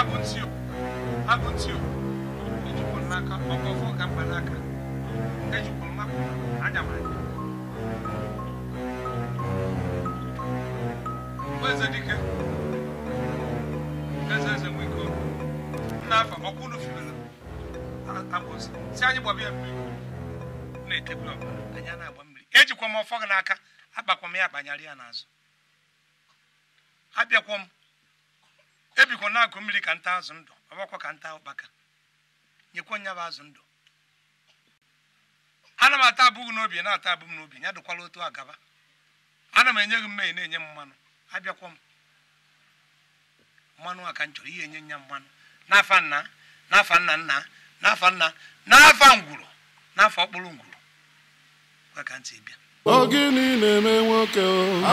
abụntị abụntị ejikwa n'aka ọfọ n'aka ejikwa mmapụ anya m anya eze dike n'aka eze nwe ike afa ọkwa unu fibere abụntị si anyị gbaba ya mmiri na-etebụl ọbara na-agba mmiri ejikwa m ọfọ gị n'aka akpakwa m ya ya n'azụ ebikwa na akụ mmiri ka nta azụ ndụ ọgbakwa ka nta ụkpaka nyekwa nya bụ azụ ndụ ana m ata abụghị n'obi na-ata abụ n'obi ya dụkwala otu agaba ana m enye gị mmehie na-enye m mmanụ abịakwa m mmanụ a ka m chọrọ ihe enye nya mmanụ n'afa nna n'afa nna nna n'afa nna n'afa ngwuru n'afa ọkpụrụ ngwuru kwa ka ntị bịa ogini na-eme nwoke